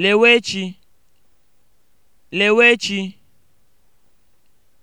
lewechi. lewechi.